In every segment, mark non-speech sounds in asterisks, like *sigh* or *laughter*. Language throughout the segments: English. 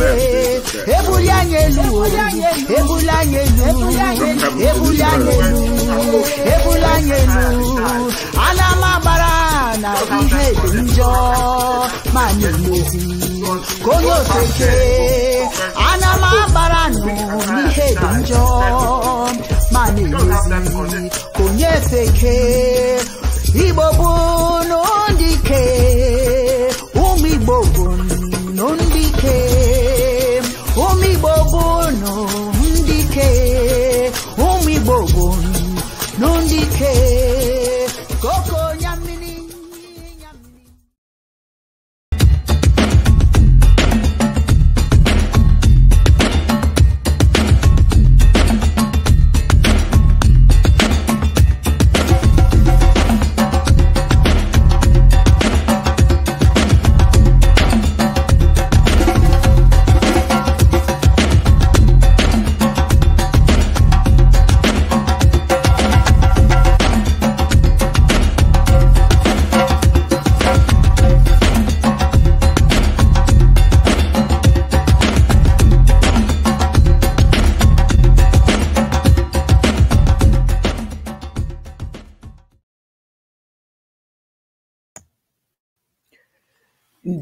ebuli anyị elu ebuli anyị elu ebuli na ihe dị njọ ma na na-emezi ka onye ofeke igbo bụ n'ụdị ike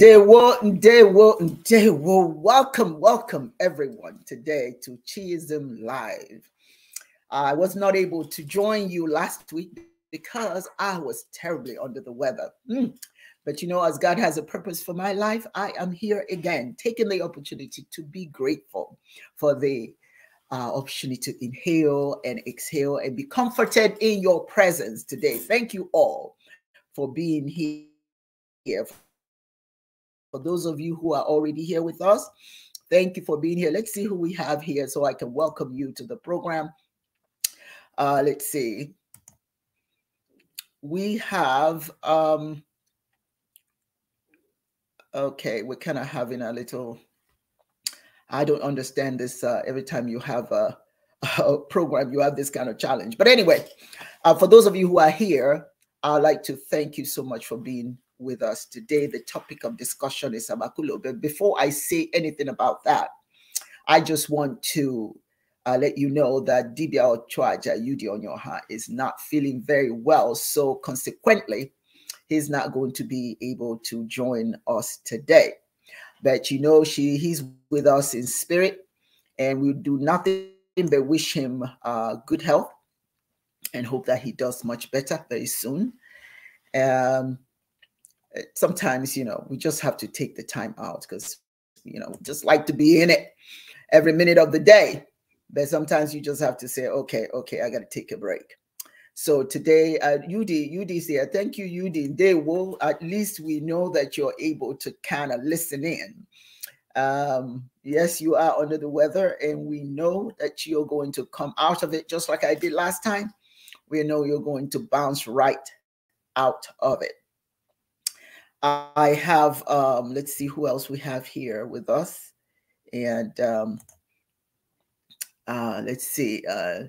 one, day one. Welcome, welcome everyone today to Chism Live. I was not able to join you last week because I was terribly under the weather. Mm. But you know, as God has a purpose for my life, I am here again, taking the opportunity to be grateful for the uh, opportunity to inhale and exhale and be comforted in your presence today. Thank you all for being here for those of you who are already here with us, thank you for being here. Let's see who we have here so I can welcome you to the program. Uh, let's see. We have, um, okay, we're kind of having a little, I don't understand this uh, every time you have a, *laughs* a, program, you have this kind of challenge. But anyway, uh, for those of you who are here, I'd like to thank you so much for being with us today. The topic of discussion is Abakulo. But before I say anything about that, I just want to uh, let you know that Dibia Ochoaja Yudi Onyoha is not feeling very well. So consequently, he's not going to be able to join us today. But you know, she he's with us in spirit, and we do nothing but wish him uh, good health and hope that he does much better very soon. Um, Eh, sometimes you know we just have to take the time out because you know just like to be in it every minute of the day but sometimes you just have to say okay okay i gotta take a break so today uh, ud ud thank you ud they will at least we know that you're able to kind of listen in um, yes you are under the weather and we know that you're going to come out of it just like i did last time we know you're going to bounce right out of it I have, um, let's see who else we have here with us. And um, uh, let's see, uh,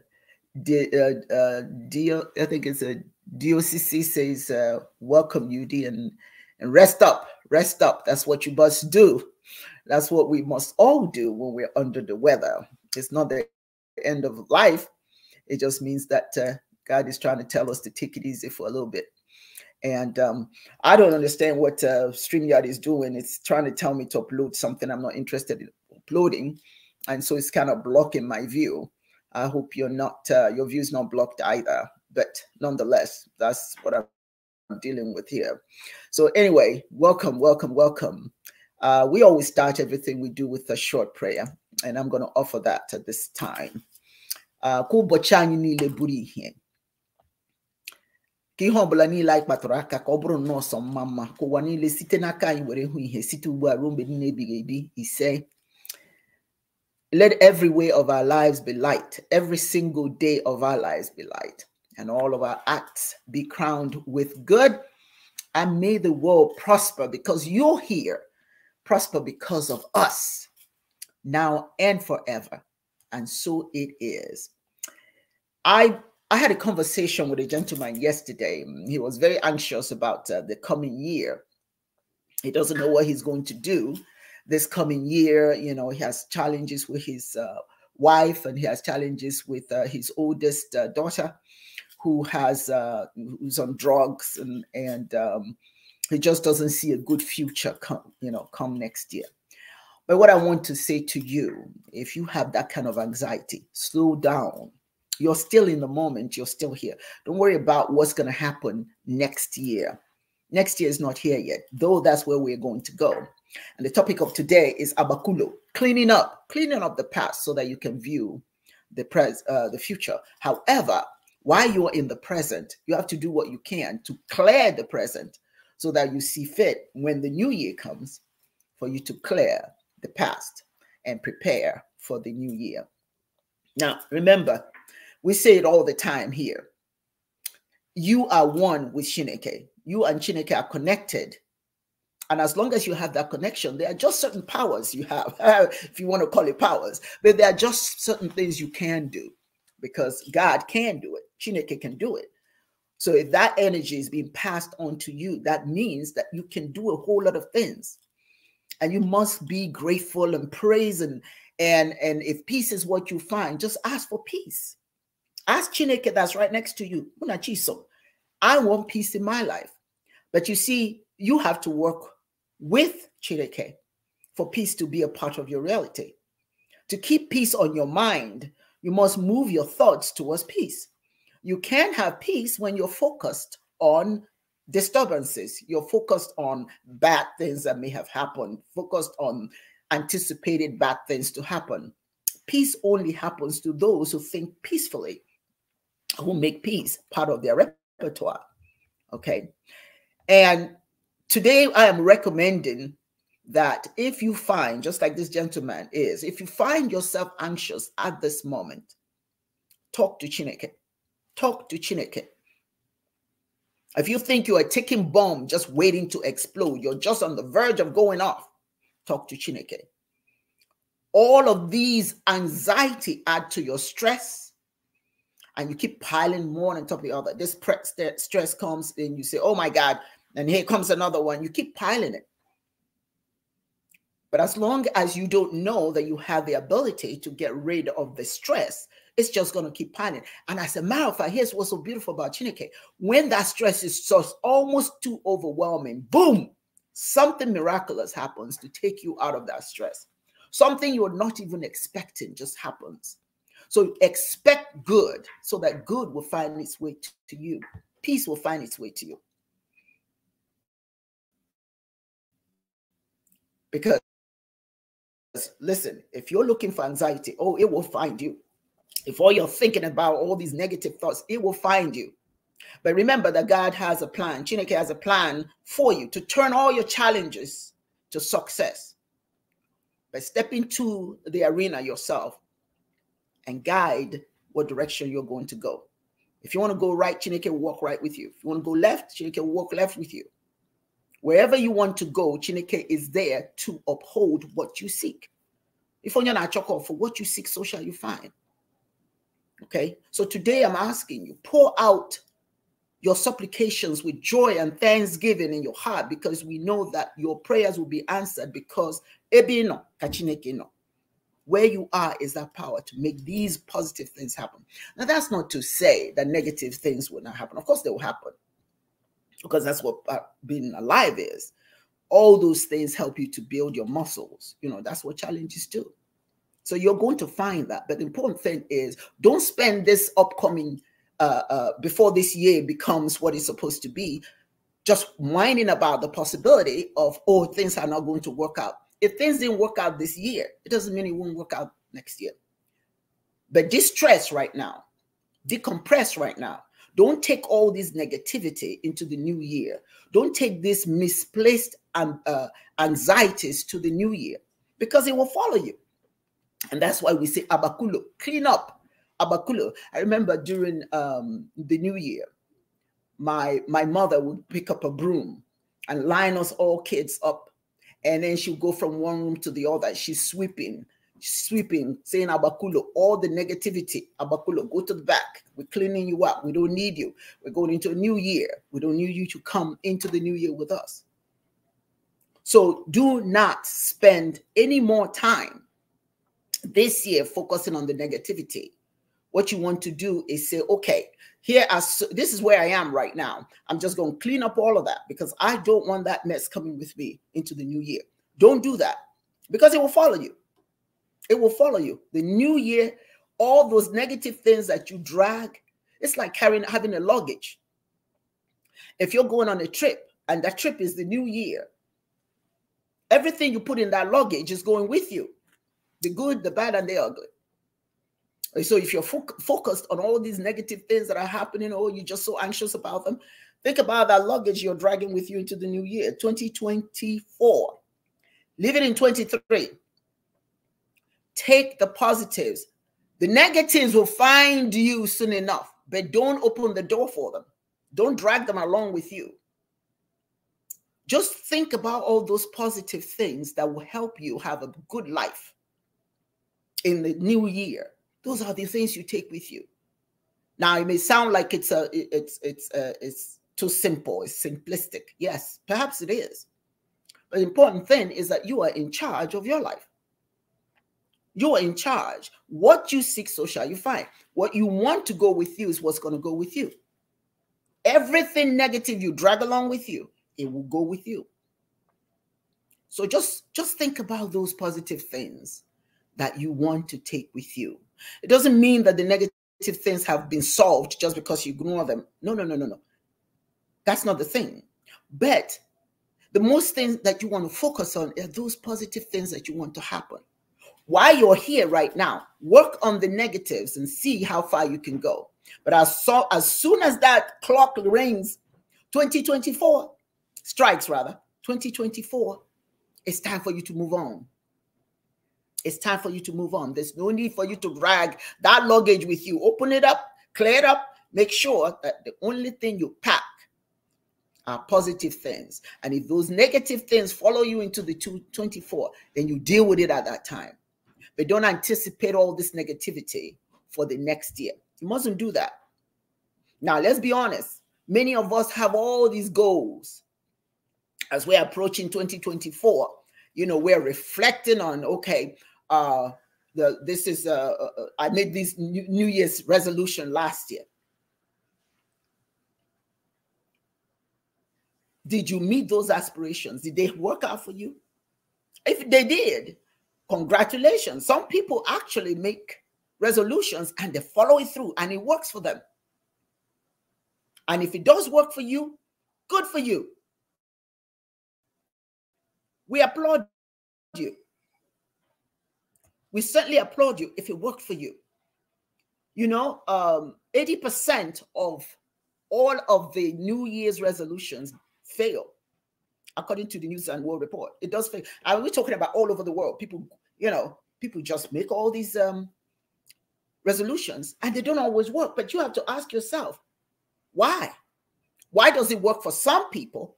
D, uh, uh, D, I think it's a uh, DOCC says, uh, welcome UD and, and rest up, rest up. That's what you must do. That's what we must all do when we're under the weather. It's not the end of life. It just means that uh, God is trying to tell us to take it easy for a little bit. And um, I don't understand what uh, StreamYard is doing. It's trying to tell me to upload something I'm not interested in uploading. And so it's kind of blocking my view. I hope you're not, uh, your view's not blocked either. But nonetheless, that's what I'm dealing with here. So anyway, welcome, welcome, welcome. Uh, we always start everything we do with a short prayer. And I'm going to offer that at this time. Uh, ka ihe ọbụla niile anyị kpatara aka ka ọ bụrụ nọọsọ mma mma ka ụwa niile site n'aka anyị were hụ ihe site ugbu a ruo mgbe niile ebighị ebi ise let every way of our lives be light every single day of our lives be light and all of our acts be crowned with good and may the world prosper because you're here prosper because of us now and forever and so it is i I had a conversation with a gentleman yesterday. He was very anxious about uh, the coming year. He doesn't know what he's going to do this coming year. You know, he has challenges with his uh, wife and he has challenges with uh, his oldest uh, daughter who has uh, who's on drugs and and um, he just doesn't see a good future come you know come next year. But what I want to say to you, if you have that kind of anxiety, slow down you're still in the moment. You're still here. Don't worry about what's going to happen next year. Next year is not here yet, though that's where we're going to go. And the topic of today is abakulo, cleaning up, cleaning up the past so that you can view the pres uh, the future. However, while you're in the present, you have to do what you can to clear the present so that you see fit when the new year comes for you to clear the past and prepare for the new year. Now, remember, we say it all the time here. You are one with Shineke. You and Shineke are connected. And as long as you have that connection, there are just certain powers you have, *laughs* if you want to call it powers, but there are just certain things you can do because God can do it. Shineke can do it. So if that energy is being passed on to you, that means that you can do a whole lot of things. And you must be grateful and praise and and and if peace is what you find, just ask for peace. Ask Chineke that's right next to you. I want peace in my life. But you see, you have to work with Chineke for peace to be a part of your reality. To keep peace on your mind, you must move your thoughts towards peace. You can have peace when you're focused on disturbances, you're focused on bad things that may have happened, focused on anticipated bad things to happen. Peace only happens to those who think peacefully who make peace part of their repertoire. Okay. And today I am recommending that if you find, just like this gentleman is, if you find yourself anxious at this moment, talk to Chineke. Talk to Chineke. If you think you are a ticking bomb just waiting to explode, you're just on the verge of going off, talk to Chineke. All of these anxiety add to your stress, and you keep piling more on top of the other. This stress comes in, you say, oh my God, and here comes another one. You keep piling it. But as long as you don't know that you have the ability to get rid of the stress, it's just going to keep piling. And as a matter of fact, here's what's so beautiful about Chineke. When that stress is just almost too overwhelming, boom, something miraculous happens to take you out of that stress. Something you're not even expecting just happens. So expect good so that good will find its way to you. Peace will find its way to you. Because listen, if you're looking for anxiety, oh, it will find you. If all you're thinking about all these negative thoughts, it will find you. But remember that God has a plan. Chineke has a plan for you to turn all your challenges to success. by stepping into the arena yourself and guide what direction you're going to go. If you want to go right, Chineke will walk right with you. If you want to go left, Chineke will walk left with you. Wherever you want to go, Chineke is there to uphold what you seek. If you're not chocolate for what you seek, so shall you find. Okay. So today I'm asking you, pour out your supplications with joy and thanksgiving in your heart because we know that your prayers will be answered because ebino kachineke no. Where you are is that power to make these positive things happen. Now, that's not to say that negative things will not happen. Of course, they will happen because that's what uh, being alive is. All those things help you to build your muscles. You know, that's what challenges do. So you're going to find that. But the important thing is don't spend this upcoming, uh, uh, before this year becomes what it's supposed to be, just whining about the possibility of, oh, things are not going to work out if things didn't work out this year, it doesn't mean it won't work out next year. But distress right now, decompress right now. Don't take all this negativity into the new year. Don't take this misplaced um, uh, anxieties to the new year because it will follow you. And that's why we say abakulo, clean up. Abakulo. I remember during um, the new year, my my mother would pick up a broom and line us all kids up and then she'll go from one room to the other. She's sweeping, sweeping, saying, Abakulo, all the negativity, Abakulo, go to the back. We're cleaning you up. We don't need you. We're going into a new year. We don't need you to come into the new year with us. So do not spend any more time this year focusing on the negativity. What you want to do is say, okay, here as this is where I am right now. I'm just going to clean up all of that because I don't want that mess coming with me into the new year. Don't do that because it will follow you. It will follow you. The new year, all those negative things that you drag, it's like carrying having a luggage. If you're going on a trip and that trip is the new year, everything you put in that luggage is going with you. The good, the bad, and the ugly. So if you're fo focused on all these negative things that are happening, or oh, you're just so anxious about them, think about that luggage you're dragging with you into the new year, 2024. Leave it in 23. Take the positives. The negatives will find you soon enough, but don't open the door for them. Don't drag them along with you. Just think about all those positive things that will help you have a good life in the new year. Those are the things you take with you. Now it may sound like it's a it's it's uh, it's too simple, it's simplistic. Yes, perhaps it is. But the important thing is that you are in charge of your life. You are in charge. What you seek, so shall you find. What you want to go with you is what's going to go with you. Everything negative you drag along with you, it will go with you. So just just think about those positive things that you want to take with you it doesn't mean that the negative things have been solved just because you ignore them. No, no, no, no, no. That's not the thing. But the most things that you want to focus on are those positive things that you want to happen. While you're here right now, work on the negatives and see how far you can go. But as, so, as soon as that clock rings, 2024 strikes rather, 2024, it's time for you to move on. It's time for you to move on. There's no need for you to drag that luggage with you. Open it up, clear it up, make sure that the only thing you pack are positive things. And if those negative things follow you into the 224, then you deal with it at that time. But don't anticipate all this negativity for the next year. You mustn't do that. Now, let's be honest. Many of us have all these goals. As we're approaching 2024, you know, we're reflecting on, okay, uh, the this is uh, uh, uh I made this New Year's resolution last year. Did you meet those aspirations? Did they work out for you? If they did, congratulations. Some people actually make resolutions and they follow it through and it works for them. And if it does work for you, good for you. We applaud you. We certainly applaud you if it worked for you. You know, um, 80% of all of the New Year's resolutions fail, according to the News and World Report. It does fail. And we're talking about all over the world. People, you know, people just make all these um, resolutions and they don't always work. But you have to ask yourself, why? Why does it work for some people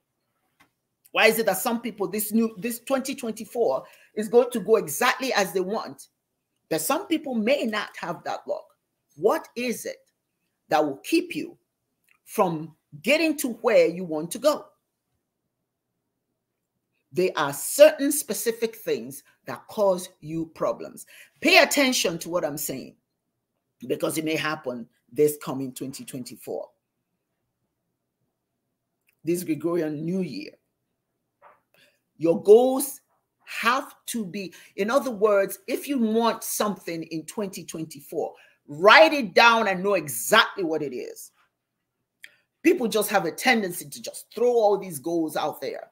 why is it that some people this new this 2024 is going to go exactly as they want? But some people may not have that luck. What is it that will keep you from getting to where you want to go? There are certain specific things that cause you problems. Pay attention to what I'm saying because it may happen this coming 2024, this Gregorian New Year. Your goals have to be, in other words, if you want something in 2024, write it down and know exactly what it is. People just have a tendency to just throw all these goals out there.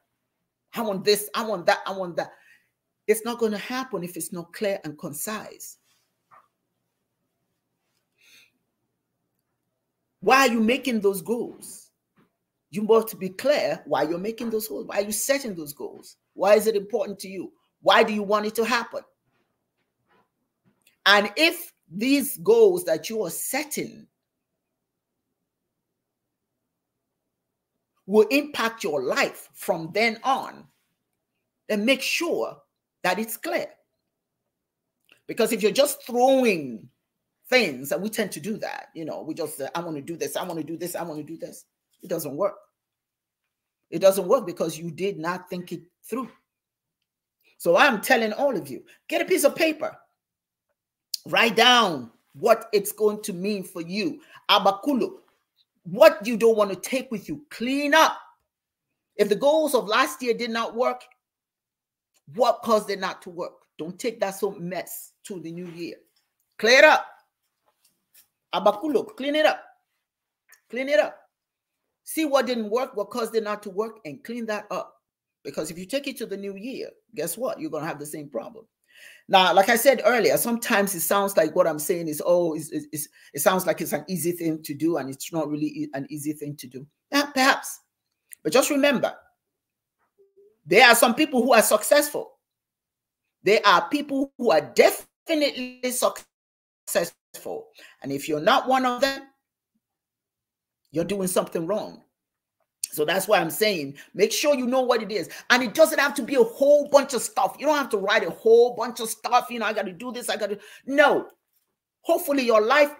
I want this, I want that, I want that. It's not going to happen if it's not clear and concise. Why are you making those goals? you must be clear why you're making those goals. Why are you setting those goals? Why is it important to you? Why do you want it to happen? And if these goals that you are setting will impact your life from then on, then make sure that it's clear. Because if you're just throwing things, and we tend to do that, you know, we just, uh, I want to do this, I want to do this, I want to do this it doesn't work. It doesn't work because you did not think it through. So I'm telling all of you get a piece of paper, write down what it's going to mean for you. Abakulu, what you don't want to take with you, clean up. If the goals of last year did not work, what caused it not to work? Don't take that so mess to the new year. Clear up. Abakulo, clean it up. Clean it up see what didn't work, what caused it not to work, and clean that up. Because if you take it to the new year, guess what? You're going to have the same problem. Now, like I said earlier, sometimes it sounds like what I'm saying is, oh, it's, it's, it sounds like it's an easy thing to do, and it's not really an easy thing to do. Yeah, perhaps. But just remember, there are some people who are successful. There are people who are definitely successful. And if you're not one of them, you're doing something wrong. So that's why I'm saying make sure you know what it is. And it doesn't have to be a whole bunch of stuff. You don't have to write a whole bunch of stuff. You know, I got to do this. I got to. No. Hopefully, your life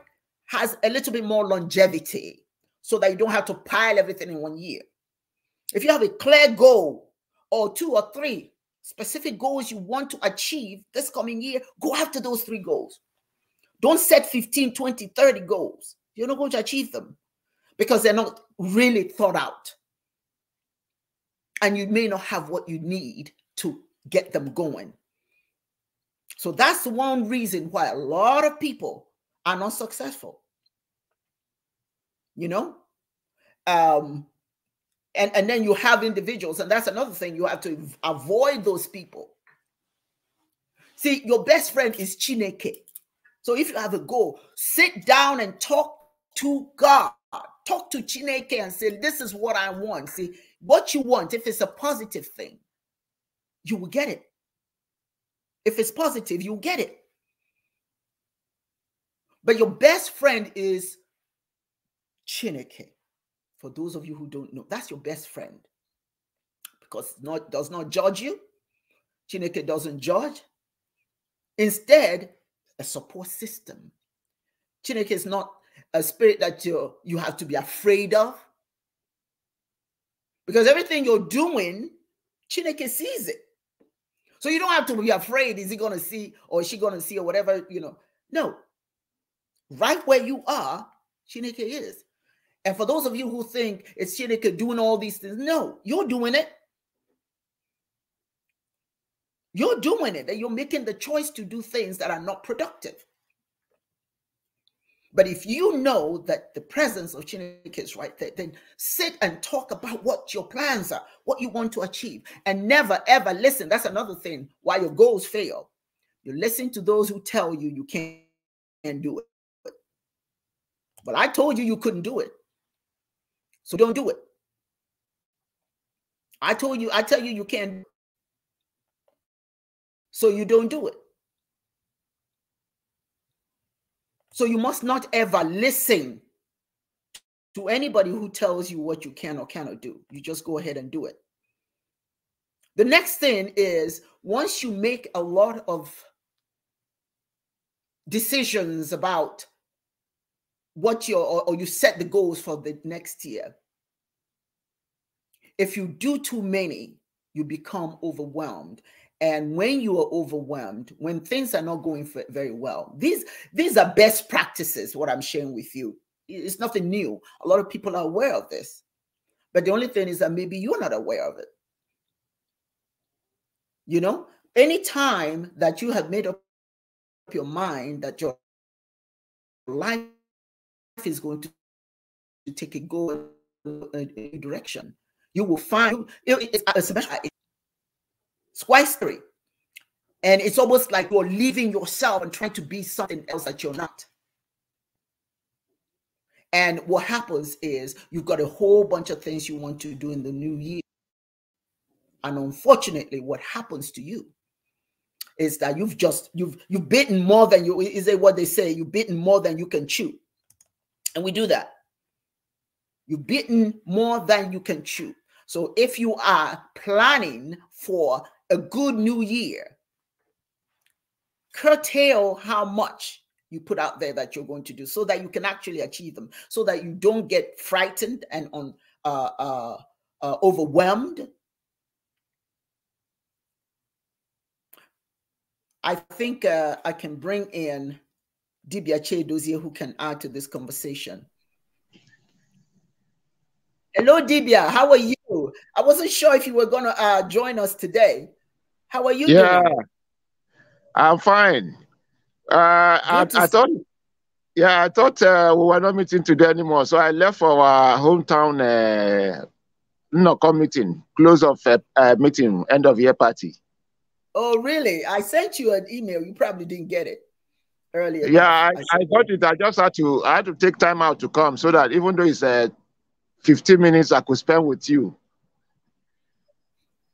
has a little bit more longevity so that you don't have to pile everything in one year. If you have a clear goal or two or three specific goals you want to achieve this coming year, go after those three goals. Don't set 15, 20, 30 goals. You're not going to achieve them because they're not really thought out. And you may not have what you need to get them going. So that's one reason why a lot of people are not successful. You know? Um, and, and then you have individuals, and that's another thing you have to avoid those people. See, your best friend is Chineke. So if you have a goal, sit down and talk to God talk to Chineke and say, This is what I want. See, what you want, if it's a positive thing, you will get it. If it's positive, you'll get it. But your best friend is Chineke. For those of you who don't know, that's your best friend because not does not judge you. Chineke doesn't judge. Instead, a support system. Chineke is not a spirit that you you have to be afraid of. Because everything you're doing, Chineke sees it. So you don't have to be afraid, is he gonna see or is she gonna see or whatever, you know. No. Right where you are, Chineke is. And for those of you who think it's Chineke doing all these things, no, you're doing it. You're doing it, and you're making the choice to do things that are not productive. But if you know that the presence of Chinook is right there, then sit and talk about what your plans are, what you want to achieve, and never ever listen. That's another thing why your goals fail. You listen to those who tell you you can't do it. But I told you you couldn't do it. So don't do it. I told you, I tell you you can't. So you don't do it. So you must not ever listen to anybody who tells you what you can or cannot do. You just go ahead and do it. The next thing is once you make a lot of decisions about what your or, or you set the goals for the next year, if you do too many, you become overwhelmed and when you are overwhelmed when things are not going very well these these are best practices what i'm sharing with you it's nothing new a lot of people are aware of this but the only thing is that maybe you're not aware of it you know anytime that you have made up your mind that your life is going to take a go a direction you will find it's twice And it's almost like you're leaving yourself and trying to be something else that you're not. And what happens is you've got a whole bunch of things you want to do in the new year. And unfortunately, what happens to you is that you've just you've you've bitten more than you is it what they say you've bitten more than you can chew and we do that you've bitten more than you can chew so if you are planning for a good new year, curtail how much you put out there that you're going to do so that you can actually achieve them, so that you don't get frightened and on, uh, uh, uh, overwhelmed. I think uh, I can bring in Dibia Chedozie who can add to this conversation. Hello, Dibia. How are you? I wasn't sure if you were going to uh, join us today. How are you yeah, doing? I'm fine. Uh, I, I, thought, yeah, I thought uh, we were not meeting today anymore. So I left for our hometown uh, no meeting, close of uh, uh, meeting, end of year party. Oh, really? I sent you an email. You probably didn't get it earlier. Yeah, I, I, I got it. I just had to. I had to take time out to come so that even though it's uh, 15 minutes, I could spend with you.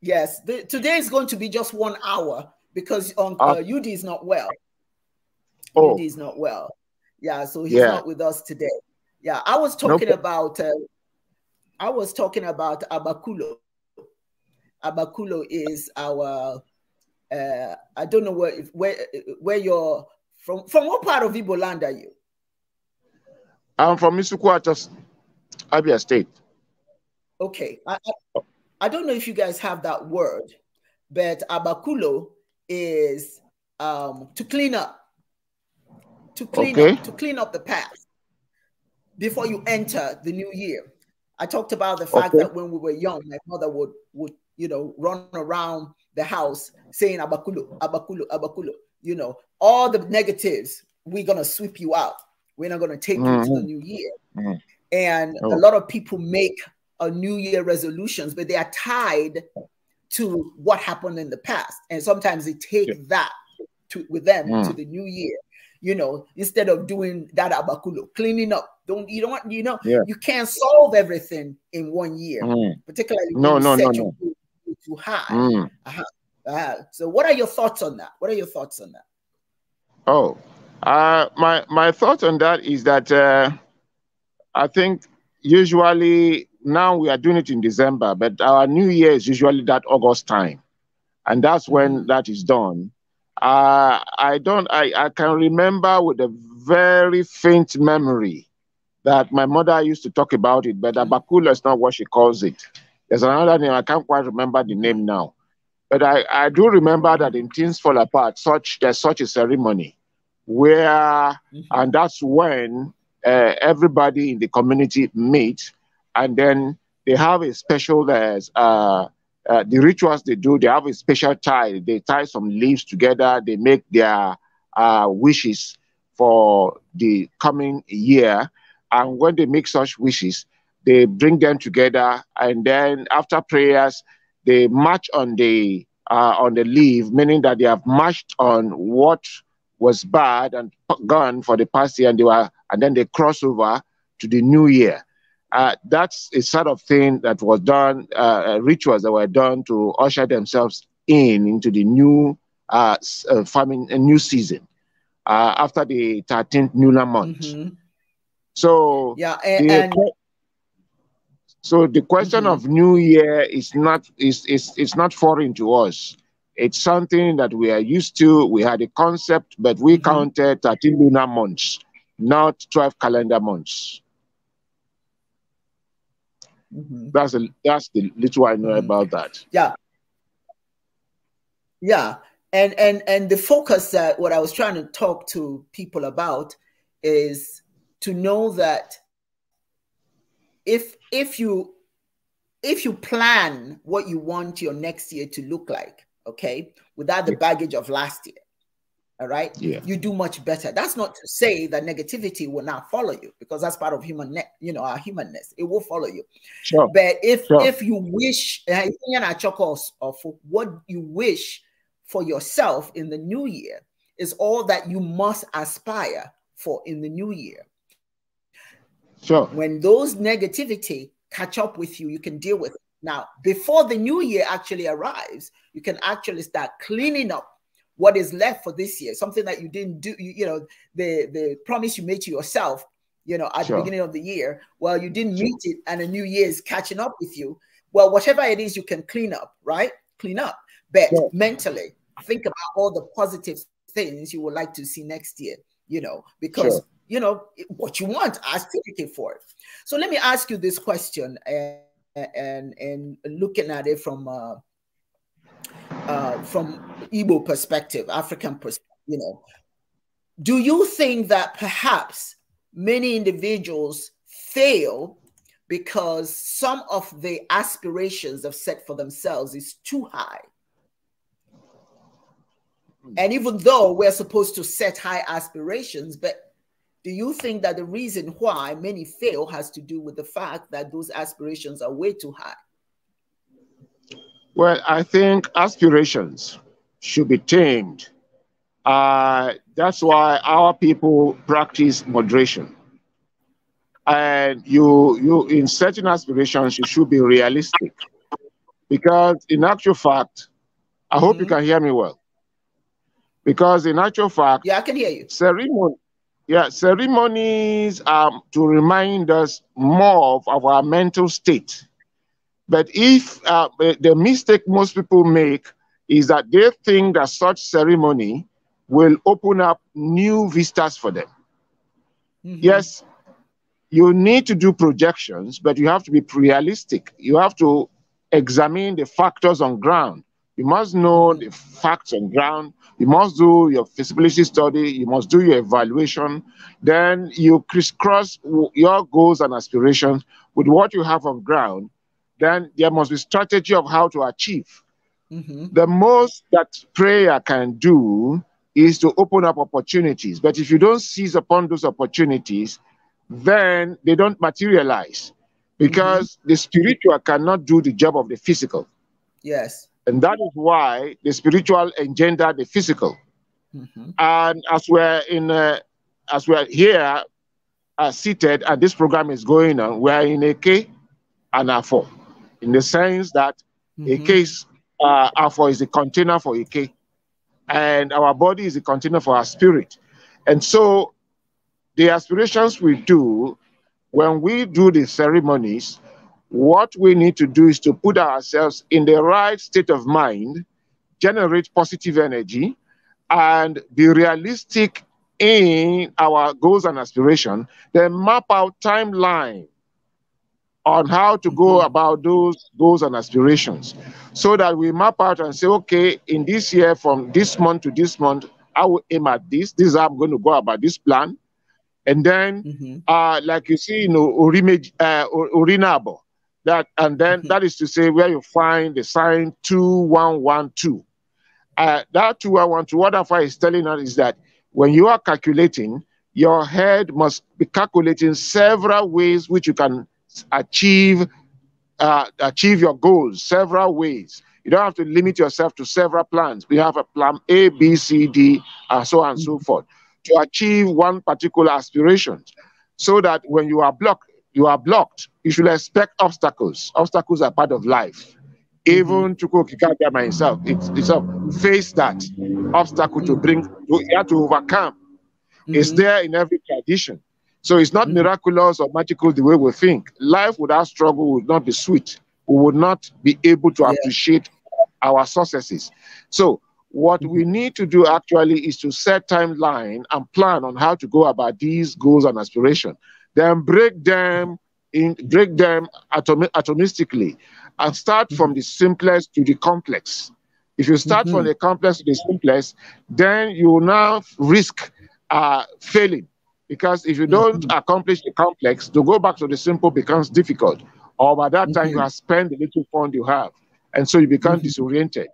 Yes, the, today is going to be just one hour because on um, uh, uh UD is not well. Oh. UD is not well. Yeah, so he's yeah. not with us today. Yeah, I was talking nope. about. Uh, I was talking about Abakulo. Abakulo is our. Uh, I don't know where where where you're from. From what part of Ibo land are you? I'm from Misukwata, Abia State. Okay. I, I, I don't know if you guys have that word, but abakulo is um, to clean up, to clean okay. up, to clean up the past before you enter the new year. I talked about the fact okay. that when we were young, my mother would would you know run around the house saying abakulo, abakulo, abakulo. You know all the negatives. We're gonna sweep you out. We're not gonna take mm -hmm. you to the mm-hmm. new year. Mm -hmm. And oh. a lot of people make uh, New Year resolutions, but they are tied to what happened in the past. And sometimes they take yeah. that to, with them mm. to the new year. You know, instead of doing that abakulo, cleaning up. Don't you don't you know yeah. you can't solve everything in one year, mm. particularly no no no, no. too high. Mm. Uh -huh. Uh -huh. So, what are your thoughts on that? What are your thoughts on that? Oh, uh, my my thought on that is that uh, I think usually now we are doing it in December, but our new year is usually that August time. And that's mm-hmm. when that is done. Uh, I don't, I, I can remember with a very faint memory that my mother used to talk about it, but mm-hmm. Abakula is not what she calls it. There's another name, I can't quite remember the name now. But I, I do remember that in Things Fall Apart, such there's such a ceremony where, mm-hmm. and that's when uh, everybody in the community meets and then they have a special uh, uh, the rituals they do. They have a special tie. They tie some leaves together. They make their uh, wishes for the coming year, and when they make such wishes, they bring them together, and then after prayers, they march on the uh, on the leave, meaning that they have marched on what was bad and gone for the past year, and they were, and then they cross over to the new year. Uh, that's a sort of thing that was done, uh, uh, rituals that were done to usher themselves in into the new uh, uh farming, a new season uh, after the 13th lunar month. Mm-hmm. So yeah, and, the, and... so the question mm-hmm. of New Year is not is is is not foreign to us. It's something that we are used to. We had a concept, but we mm-hmm. counted 13 lunar months, not 12 calendar months. Mm-hmm. That's a, that's the little I know mm-hmm. about that. Yeah, yeah, and and and the focus that what I was trying to talk to people about is to know that if if you if you plan what you want your next year to look like, okay, without the baggage of last year, all right yeah. you do much better that's not to say that negativity will not follow you because that's part of human you know our humanness it will follow you sure. but if sure. if you wish eh, what you wish for yourself in the new year is all that you must aspire for in the new year sure when those negativity catch up with you you can deal with it now before the new year actually arrives you can actually start cleaning up what is left for this year, something that you didn't do, you, you know, the, the promise you made to yourself, you know, at sure. the beginning of the year, well, you didn't sure. meet it and a new year is catching up with you. Well, whatever it is you can clean up, right? Clean up, but yeah. mentally think about all the positive things you would like to see next year, you know, because sure. you know what you want, ask advocate for it. So let me ask you this question and eh, eh, and, and looking at it from uh, uh, from Igbo perspective, African perspective, you know, do you think that perhaps many individuals fail because some of the aspirations they've set for themselves is too high? And even though we're supposed to set high aspirations, but do you think that the reason why many fail has to do with the fact that those aspirations are way too high? Well, I think aspirations should be tamed. Uh, that's why our people practice moderation. And you, you, in certain aspirations, you should be realistic. Because in actual fact, I hope mm -hmm. you mm-hmm. can hear me well. Because in actual fact, yeah, I can hear you. Ceremony, yeah, ceremonies are to remind us more of our mental state but if uh, the mistake most people make is that they think that such ceremony will open up new vistas for them. Mm-hmm. Yes, you need to do projections, but you have to be realistic. You have to examine the factors on ground. You must know mm-hmm. the facts on ground. You must do your feasibility study. You must do your evaluation. Then you crisscross your goals and aspirations with what you have on ground then there must be strategy of how to achieve. Mm-hmm. The most that prayer can do is to open up opportunities. But if you don't seize upon those opportunities, then they don't materialize because mm-hmm. the spiritual cannot do the job of the physical. Yes. And that is why the spiritual engender the physical. Mm-hmm. And as we're in, uh, as we're here, uh, seated, and this program is going on, we're in a K and a four in the sense that mm-hmm. a case uh, alpha is a container for a K, and our body is a container for our spirit. And so the aspirations we do, when we do the ceremonies, what we need to do is to put ourselves in the right state of mind, generate positive energy, and be realistic in our goals and aspiration, then map out timeline on how to go mm-hmm. about those goals and aspirations so that we map out and say, okay, in this year, from this month to this month, I will aim at this. This is how I'm going to go about this plan. And then, mm-hmm. uh, like you see, you know, Urime, uh, that, and then mm-hmm. that is to say where you find the sign 2112. Uh, that 2112, what I is telling us is that when you are calculating, your head must be calculating several ways which you can achieve uh, achieve your goals several ways. You don't have to limit yourself to several plans. We have a plan A, B, C, D, and uh, so on and so mm-hmm. forth to achieve one particular aspiration. So that when you are blocked, you are blocked. You should expect obstacles. Obstacles are part of life. Mm-hmm. Even to Chukwu by himself, it's, itself face that obstacle to bring, to, you have to overcome. Mm -hmm. It's mm-hmm. there in every tradition. So it's not mm. miraculous or magical the way we think. Life without struggle would not be sweet. We would not be able to yeah. appreciate our successes. So what we mm-hmm. need to do actually is to set timeline and plan on how to go about these goals and aspiration. Then break them in break them atom atomistically and start from mm-hmm. the simplest to the complex. If you start mm-hmm. from the complex to the simplest, then you will now risk uh, failing because if you don't mm-hmm. accomplish the complex, to go back to the simple becomes difficult. Or by that mm-hmm. time, you mm-hmm. have spent the little fund you have. And so you become mm-hmm. disoriented.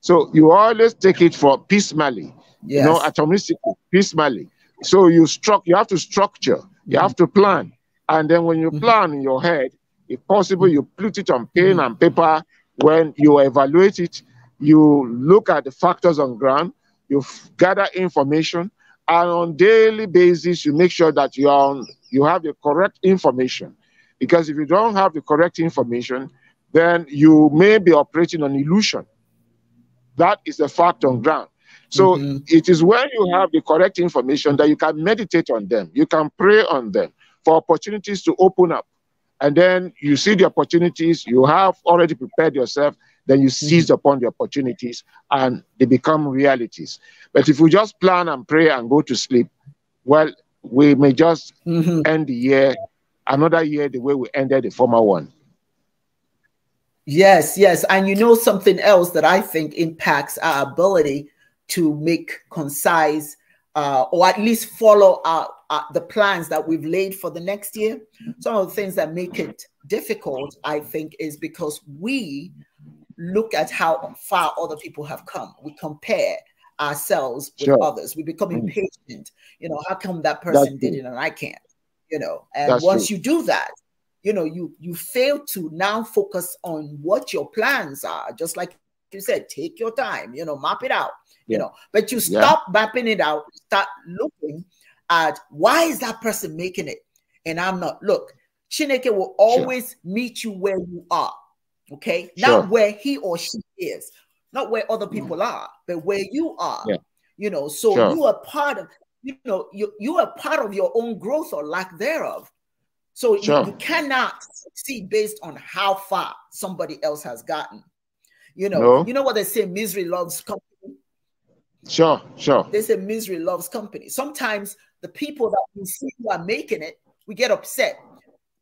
So you always take it for piecemeal, yes. you know, atomistically, piecemeal. So you struck, you have to structure, you mm-hmm. have to plan. And then when you mm-hmm. plan in your head, if possible, you put it on pen and paper. When you evaluate it, you look at the factors on ground, you gather information, and on daily basis you make sure that you are on, you have the correct information because if you don't have the correct information then you may be operating on illusion that is the fact on ground so mm-hmm. it is when you have the correct information that you can meditate on them you can pray on them for opportunities to open up and then you see the opportunities you have already prepared yourself then you seize mm-hmm. upon the opportunities and they become realities. But if we just plan and pray and go to sleep, well, we may just mm-hmm. end the year, another year, the way we ended the former one. Yes, yes. And you know something else that I think impacts our ability to make concise uh, or at least follow our, our, the plans that we've laid for the next year. Some of the things that make it difficult, I think, is because we look at how far other people have come. We compare ourselves with sure. others. We become mm. impatient. You know, how come that person did it and I can't? You know, and That's once true. you do that, you know, you you fail to now focus on what your plans are. Just like you said, take your time. You know, map it out. Yeah. You know, but you stop yeah. mapping it out. Start looking at why is that person making it, and I'm not. Look, Chineke will always sure. meet you where you are. Okay. Sure. Not where he or she is, not where other mm. people mm. are, but where you are. Yeah. You know, so sure. you are part of, you know, you, you are part of your own growth or lack thereof. So sure. you, you, cannot see based on how far somebody else has gotten. You know, no. you know what they say, misery loves company. Sure, sure. They say misery loves company. Sometimes the people that we see who are making it, we get upset,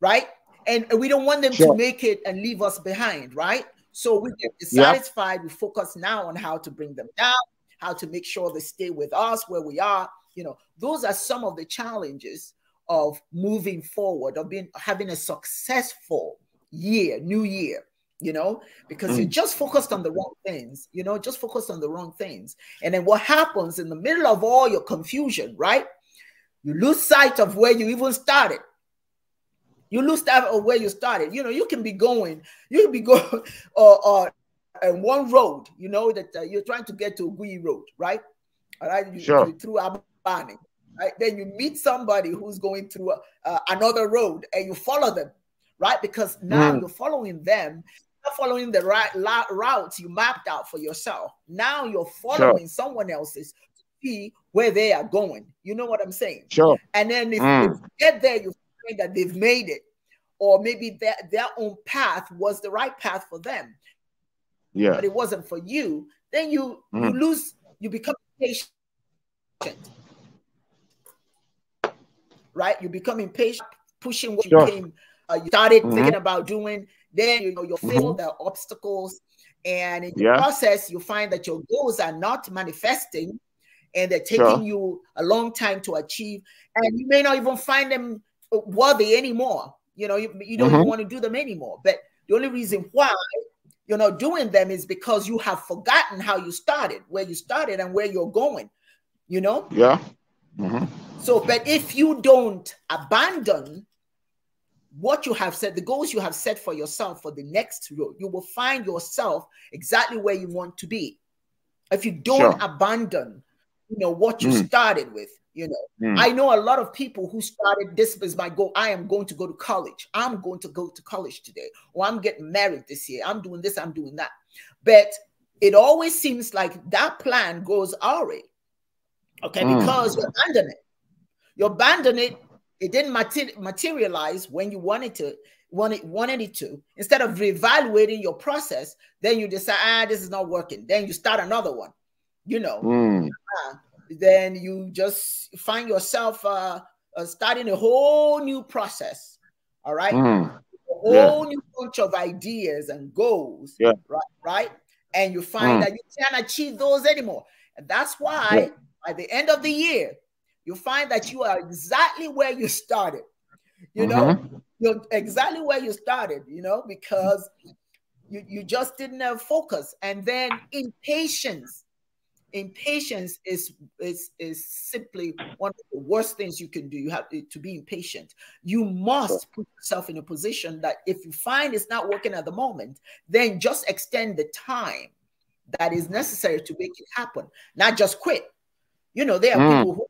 right? and we don't want them sure. to make it and leave us behind, right? So we get dissatisfied. Yep. We focus now on how to bring them down, how to make sure they stay with us where we are. You know, those are some of the challenges of moving forward, of being having a successful year, new year. You know, because mm. you just focused on the wrong things. You know, just focused on the wrong things, and then what happens in the middle of all your confusion, right? You lose sight of where you even started you lose track of where you started. You know, you can be going, you can be *laughs* going or, or on one road, you know, that uh, you're trying to get to Gui Road, right? All right, you, sure. you, through Abani. Right? Then you meet somebody who's going through uh, uh another road and you follow them, right? Because now mm. you're following them, you're following the right la- route you mapped out for yourself. Now you're following sure. someone else's to see where they are going. You know what I'm saying? Sure. And then if mm. you get there, you that they've made it, or maybe their their own path was the right path for them. Yeah, but it wasn't for you. Then you, mm-hmm. you lose. You become impatient, Right, you become impatient, pushing what sure. you came, uh, you started mm-hmm. thinking about doing. Then you know you mm-hmm. feel mm-hmm. the obstacles, and in yeah. the process, you find that your goals are not manifesting and they're taking sure. you a long time to achieve and you may not even find them worthy anymore. You know, you, you don't mm -hmm. want to do them anymore. But the only reason why you're not doing them is because you have forgotten how you started, where you started, and where you're going. You know? Yeah. Mm -hmm. So, but if you don't abandon what you have set, the goals you have set for yourself for the next road, you will find yourself exactly where you want to be. If you don't sure. abandon, you know what you mm. started with, you know, mm. I know a lot of people who started this business by go, I am going to go to college. I'm going to go to college today. Or I'm getting married this year. I'm doing this, I'm doing that. But it always seems like that plan goes awry. Okay, mm. because you abandon it. You abandon it. It didn't mater- materialize when you wanted to wanted wanted it to instead of reevaluating your process then you decide ah this is not working then you start another one you know mm. uh, then you just find yourself uh, uh, starting a whole new process. All right. Mm. A whole yeah. new bunch of ideas and goals. Yeah. Right. Right. And you find mm. that you can't achieve those anymore. And that's why yeah. by the end of the year, you find that you are exactly where you started. You mm -hmm. know, mm-hmm. you're exactly where you started, you know, because you, you just didn't have uh, focus. And then impatience impatience is is is simply one of the worst things you can do you have to be impatient you must put yourself in a position that if you find it's not working at the moment then just extend the time that is necessary to make it happen not just quit you know there are mm. people who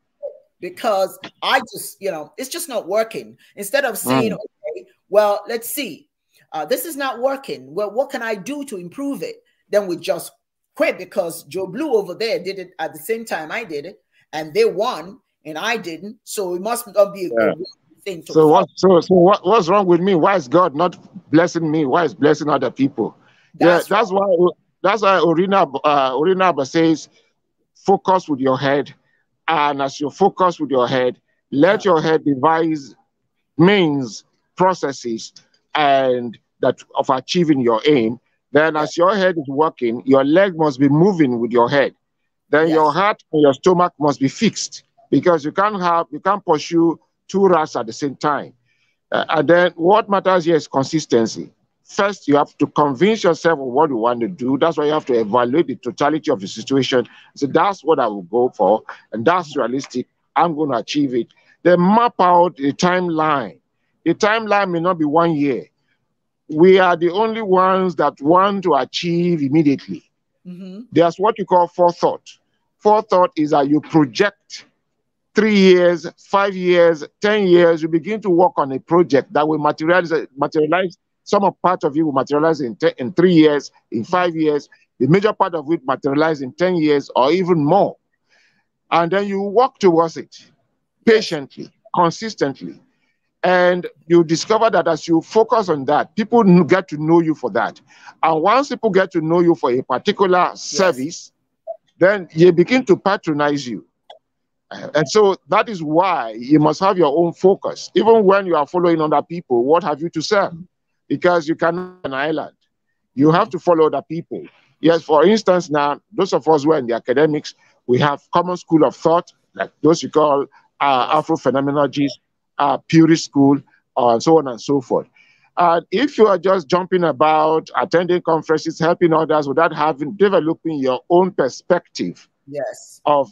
because i just you know it's just not working instead of saying mm. okay well let's see uh, this is not working well what can i do to improve it then we just quit because Joe Blue over there did it at the same time I did it, and they won and I didn't. So it must not be a yeah. good thing. so what? So, so what, what's wrong with me? Why is God not blessing me? Why is blessing other people? That's yeah, that's why. That's why Orina uh, Orina says, focus with your head, and as you focus with your head, let yeah. your head devise means, processes, and that of achieving your aim then, as your head is working, your leg must be moving with your head. Then yes. your heart and your stomach must be fixed because you can't have you can't pursue two rats at the same time. Uh, and then what matters here is consistency. First, you have to convince yourself of what you want to do. That's why you have to evaluate the totality of the situation. So that's what I will go for, and that's realistic. I'm going to achieve it. Then map out the timeline. The timeline may not be one year we are the only ones that want to achieve immediately. Mm-hmm. There's what you call forethought. Forethought is that you project three years, five years, 10 years, you begin to work on a project that will materialize, materialize some of part of it will materialize in, te- in three years, in five years, the major part of it materialize in 10 years or even more. And then you work towards it patiently, consistently. And you discover that as you focus on that, people get to know you for that. And once people get to know you for a particular yes. service, then they begin to patronize you. Uh, and so that is why you must have your own focus. Even when you are following other people, what have you to serve? Because you cannot an island. You have to follow other people. Yes, for instance, now, those of us who are in the academics, we have common school of thought, like those you call uh, Afro phenomenologists, uh, Puri school, uh, so on and so forth. And if you are just jumping about, attending conferences, helping others without having developing your own perspective yes. of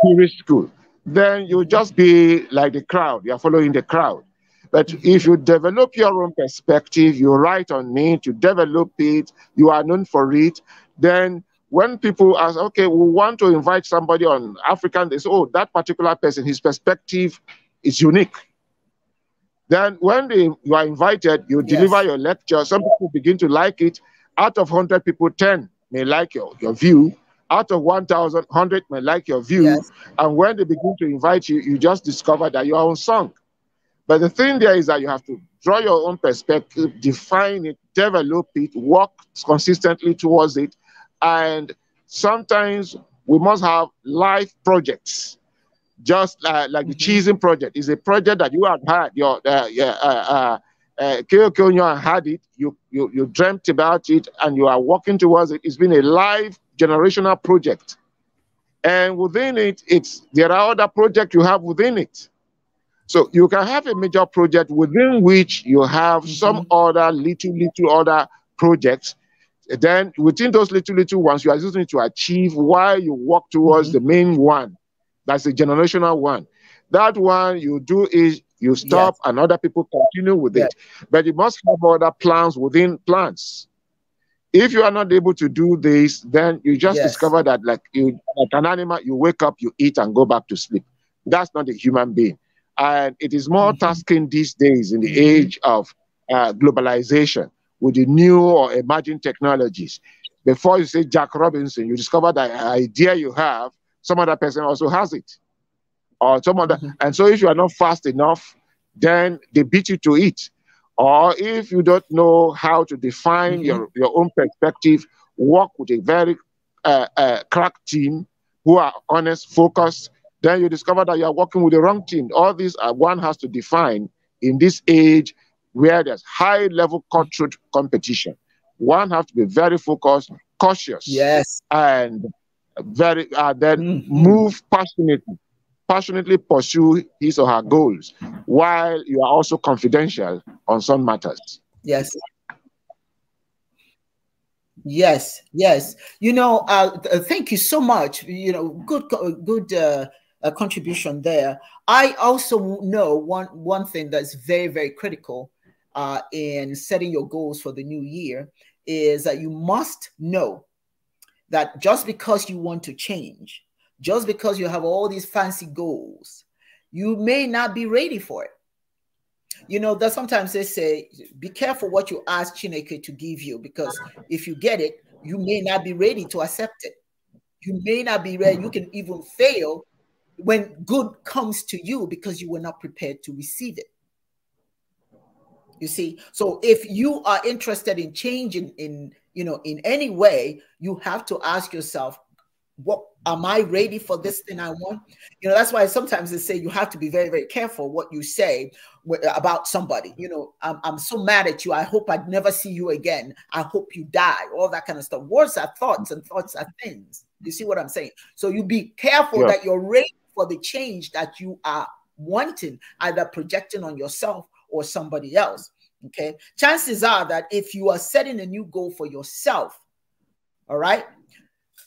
Puri school, then you'll just be like the crowd. You're following the crowd. But if you develop your own perspective, you write on it, you develop it, you are known for it, then when people ask, okay, we want to invite somebody on African, they say, oh, that particular person, his perspective is unique. Then when they, you are invited, you yes. deliver your lecture. Some people begin to like it. Out of 100 people, 10 may like your, your view. Out of 1,000, 100 may like your view. Yes. And when they begin to invite you, you just discover that you are unsung. But the thing there is that you have to draw your own perspective, define it, develop it, work consistently towards it. And sometimes we must have life projects just like, like mm-hmm. the Cheesing project is a project that you had had your uh, yeah, uh, uh, uh, had it. You, you you dreamt about it and you are working towards it. It's been a live generational project, and within it, it's there are other projects you have within it. So you can have a major project within which you have mm-hmm. some other little little other projects. Then within those little little ones, you are using to achieve why you work towards mm-hmm. the main one. That's a generational one. That one you do is you stop yes. and other people continue with yes. it. But you must have other plans within plans. If you are not able to do this, then you just yes. discover that, like you, like an animal, you wake up, you eat, and go back to sleep. That's not a human being, and it is more mm -hmm. tasking these days in the mm -hmm. age of uh, globalization with the new or emerging technologies. Before you say Jack Robinson, you discover that idea you have some other person also has it. Or some other, mm-hmm. and so if you are not fast enough, then they beat you to it. Or if you don't know how to define mm-hmm. your, your own perspective, work with a very uh, uh, crack team who are honest, focused, then you discover that you are working with the wrong team. All these are, one has to define in this age where there's high level cultural competition. One has to be very focused, cautious, yes, and very uh, mm-hmm. move passionately passionately pursue his or her goals while you are also confidential on some matters yes yes yes you know uh, uh thank you so much you know good good uh, uh, contribution there i also know one one thing that's very very critical uh, in setting your goals for the new year is that you must know that just because you want to change, just because you have all these fancy goals, you may not be ready for it. You know, that sometimes they say, be careful what you ask Chineke to give you, because if you get it, you may not be ready to accept it. You may not be ready. You can even fail when good comes to you because you were not prepared to receive it. You see, so if you are interested in changing in you know, in any way, you have to ask yourself, what am I ready for this thing I want? You know, that's why sometimes they say you have to be very, very careful what you say about somebody. You know, I'm, I'm so mad at you. I hope I'd never see you again. I hope you die. All that kind of stuff. Words are thoughts, and thoughts are things. You see what I'm saying? So you be careful yeah. that you're ready for the change that you are wanting, either projecting on yourself or somebody else. Okay. Chances are that if you are setting a new goal for yourself, all right,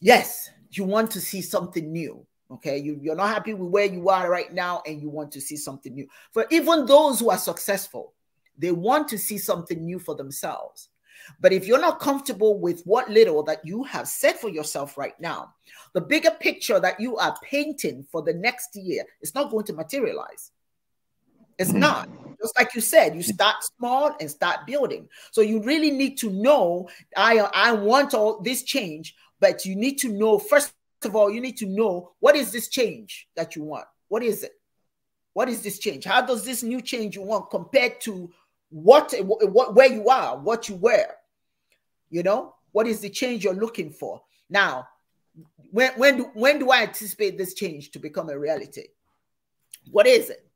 yes, you want to see something new. Okay. You, you're not happy with where you are right now and you want to see something new. For even those who are successful, they want to see something new for themselves. But if you're not comfortable with what little that you have set for yourself right now, the bigger picture that you are painting for the next year is not going to materialize. It's mm-hmm. not. Just like you said, you hmm. start small and start building. So you really need to know I I want all this change, but you need to know first of all, you need to know what is this change that you want? What is it? What is this change? How does this new change you want compared to what, what where you are, what you were? You know, what is the change you're looking for? Now, when when do when do I anticipate this change to become a reality? What is it?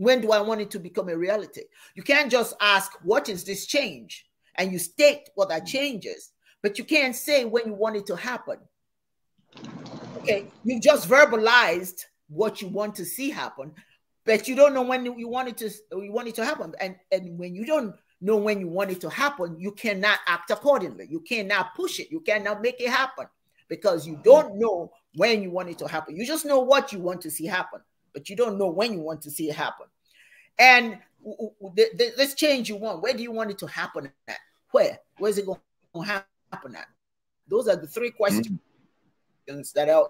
When do I want it to become a reality? You can't just ask, what is this change? And you state what that change is, but you can't say when you want it to happen. Okay, you have just verbalized what you want to see happen, but you don't know when you want it to you want it to happen. And and when you don't know when you want it to happen, you cannot act accordingly. You cannot push it. You cannot make it happen because you don't know when you want it to happen. You just know what you want to see happen but you don't know when you want to see it happen. And this change you want, where do you want it to happen at? Where? Where's it going to happen at? Those are the three questions mm-hmm. that are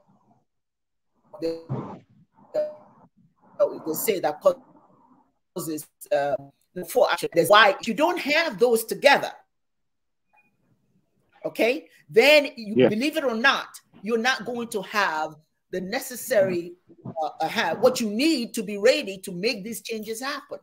they, say that causes uh, four. action. why if you don't have those together, okay, then you yeah. believe it or not, you're not going to have the necessary uh, uh have what you need to be ready to make these changes happen.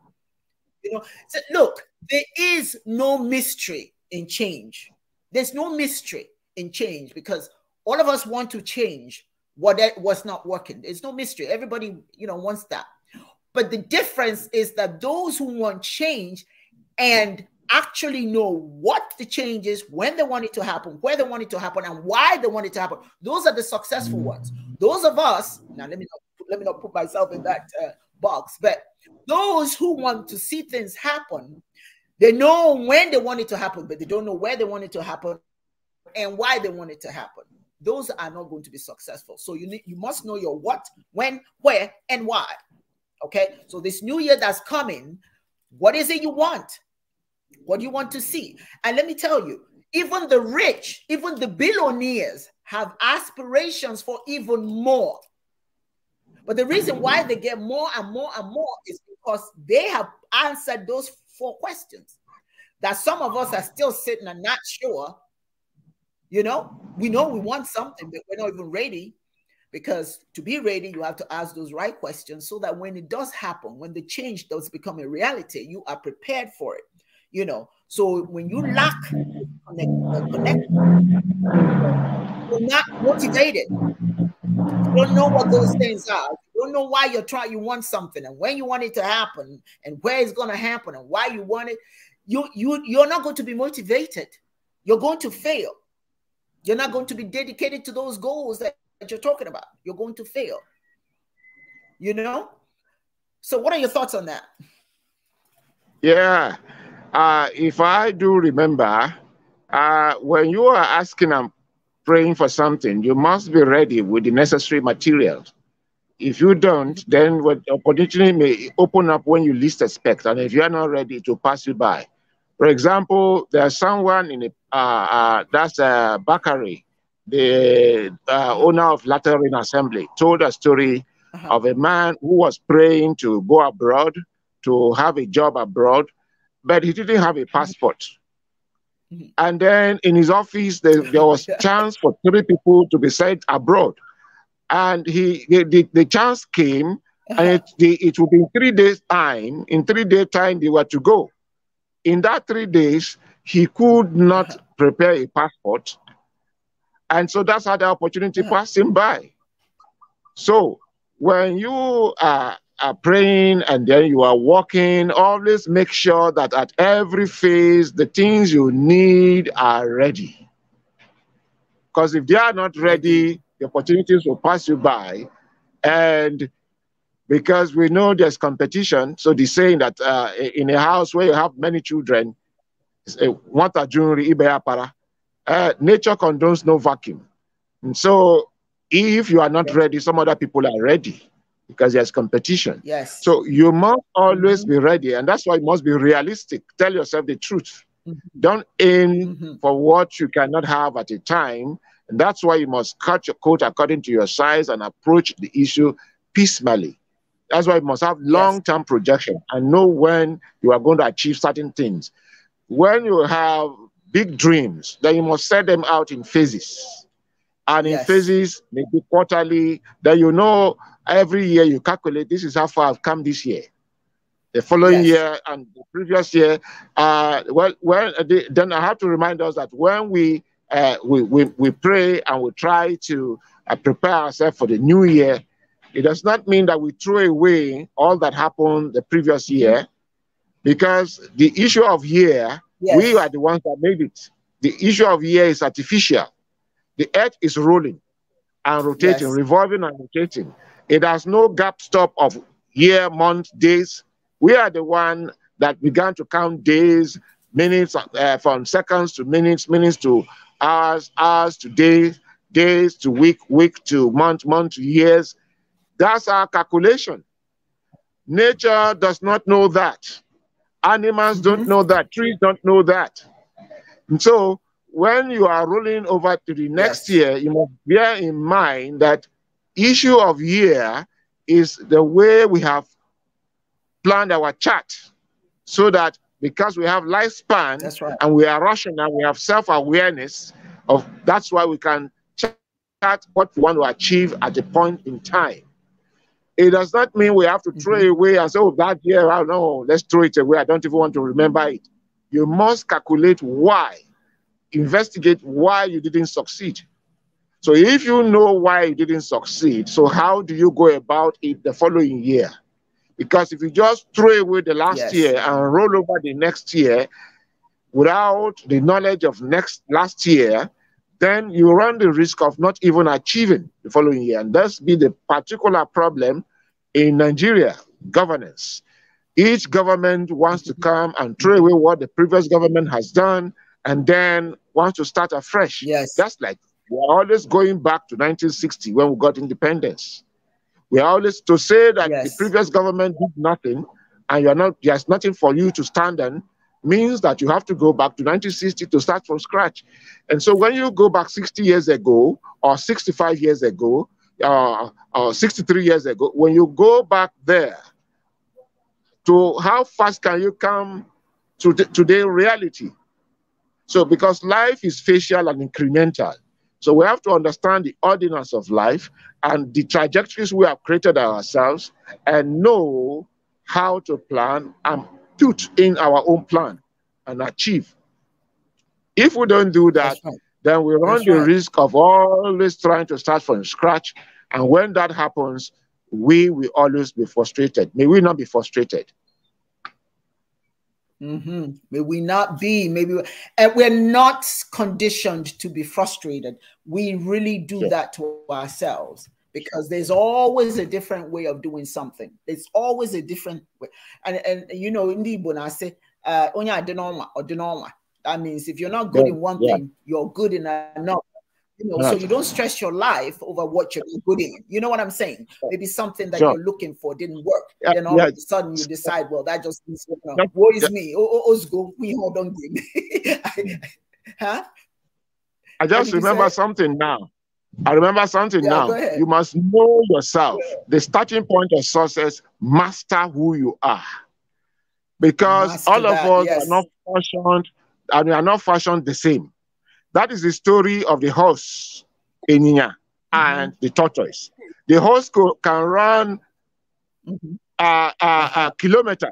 You know, so look, there is no mystery in change. There's no mystery in change because all of us want to change what was not working. There's no mystery. Everybody, you know, wants that. But the difference is that those who want change and actually know what the change is, when they want it to happen, where they want it to happen, and why they want it to happen, those are the successful mm-hmm. ones. Those of us, now let me not, let me not put myself in that uh, box, but those who want to see things happen, they know when they want it to happen, but they don't know where they want it to happen and why they want it to happen. Those are not going to be successful. So you need, you must know your what, when, where, and why. Okay. So this new year that's coming, what is it you want? What do you want to see? And let me tell you, even the rich, even the billionaires have aspirations for even more. But the reason why they get more and more and more is because they have answered those four questions that some of us are still sitting and not sure. You know, we know we want something, but we're not even ready because to be ready, you have to ask those right questions so that when it does happen, when the change does become a reality, you are prepared for it. You know, so when you lack connect, uh, you're not motivated. You don't know what those things are. You don't know why you're trying. You want something, and when you want it to happen, and where it's going to happen, and why you want it. You you you're not going to be motivated. You're going to fail. You're not going to be dedicated to those goals that, that you're talking about. You're going to fail. You know. So, what are your thoughts on that? Yeah, uh, if I do remember, uh, when you are asking and praying for something, you must be ready with the necessary materials. If you don't, then what opportunity may open up when you least expect, and if you are not ready, to pass you by. For example, there's someone in a, uh, uh, that's a bakery. the uh, owner of Lateran Assembly, told a story uh-huh. of a man who was praying to go abroad, to have a job abroad, but he didn't have a passport. Mm-hmm. And then in his office, there, there was *laughs* chance for three people to be sent abroad. And he the, the, the chance came, and it, the, it would be in three days' time. In three days' time, they were to go. In that three days, he could not uh-huh. prepare a passport. And so that's how the opportunity uh-huh. passed him by. So when you are are praying and then you are walking, always make sure that at every phase the things you need are ready. Because if they are not ready, the opportunities will pass you by. And because we know there's competition, so the saying that uh, in a house where you have many children, uh, nature condones no vacuum. And so if you are not ready, some other people are ready because there's competition. Yes. So you must always mm-hmm. be ready, and that's why you must be realistic. Tell yourself the truth. Mm-hmm. Don't aim mm-hmm. for what you cannot have at a time. And that's why you must cut your coat according to your size and approach the issue piecemeally. That's why you must have long-term yes. projection and know when you are going to achieve certain things. When you have big dreams, then you must set them out in phases and in yes. phases, maybe quarterly, that you know Every year you calculate, this is how far I've come this year. The following yes. year and the previous year, uh, well, well, then I have to remind us that when we uh, we, we, we pray and we try to uh, prepare ourselves for the new year, it does not mean that we throw away all that happened the previous year because the issue of year, yes. we are the ones that made it. The issue of year is artificial. The earth is rolling and rotating, yes. revolving and rotating. It has no gap stop of year, month, days. We are the one that began to count days, minutes, uh, from seconds to minutes, minutes to hours, hours to days, days to week, week to month, month to years. That's our calculation. Nature does not know that. Animals don't mm-hmm. know that. Trees don't know that. And so when you are rolling over to the next yes. year, you must bear in mind that issue of year is the way we have planned our chart so that because we have lifespan right. and we are rational, we have self-awareness of that's why we can chart what we want to achieve at a point in time. It does not mean we have to mm -hmm. throw mm-hmm. away and say, oh, that year, I oh, don't know, let's throw it away. I don't even want to remember it. You must calculate why, investigate why you didn't succeed so if you know why you didn't succeed, so how do you go about it the following year? Because if you just throw away the last yes. year and roll over the next year without the knowledge of next last year, then you run the risk of not even achieving the following year. And that's be the particular problem in Nigeria governance. Each government wants to come and throw away what the previous government has done and then wants to start afresh. Yes. That's like we are always going back to 1960 when we got independence. We are always to say that yes. the previous government did nothing and you are not there's nothing for you to stand on means that you have to go back to 1960 to start from scratch. And so when you go back 60 years ago or 65 years ago uh, or 63 years ago, when you go back there to how fast can you come to today reality? So because life is facial and incremental. So we have to understand the ordinance of life and the trajectories we have created ourselves and know how to plan and put in our own plan and achieve. If we don't do that, right. then we run That's the right. risk of always trying to start from scratch. And when that happens, we will always be frustrated. May we not be frustrated. Mm-hmm. May we not be, maybe we, and we're not conditioned to be frustrated. We really do that to ourselves because there's always a different way of doing something. It's always a different way. And and you know, in the Igbo, I say, uh, onya adenoma or denoma. That means if you're not good yeah. in one yeah. thing, you're good in another. You know, so you don't stress your life over what you're good in. You know what I'm saying? Maybe something that sure. you're looking for didn't work. Yeah, then all yeah. of a sudden you decide, well, that just means you know, what is yeah. me? Oh, oh, oh we hold on game. Huh? I just remember something now. I remember something yeah, now. You must know yourself. The starting point of success, master who you are. Because master all of that, us yes. are not fashioned and we are not fashioned the same. That is the story of the horse, Eninya, mm-hmm. and the tortoise. The horse co- can run uh, uh, uh,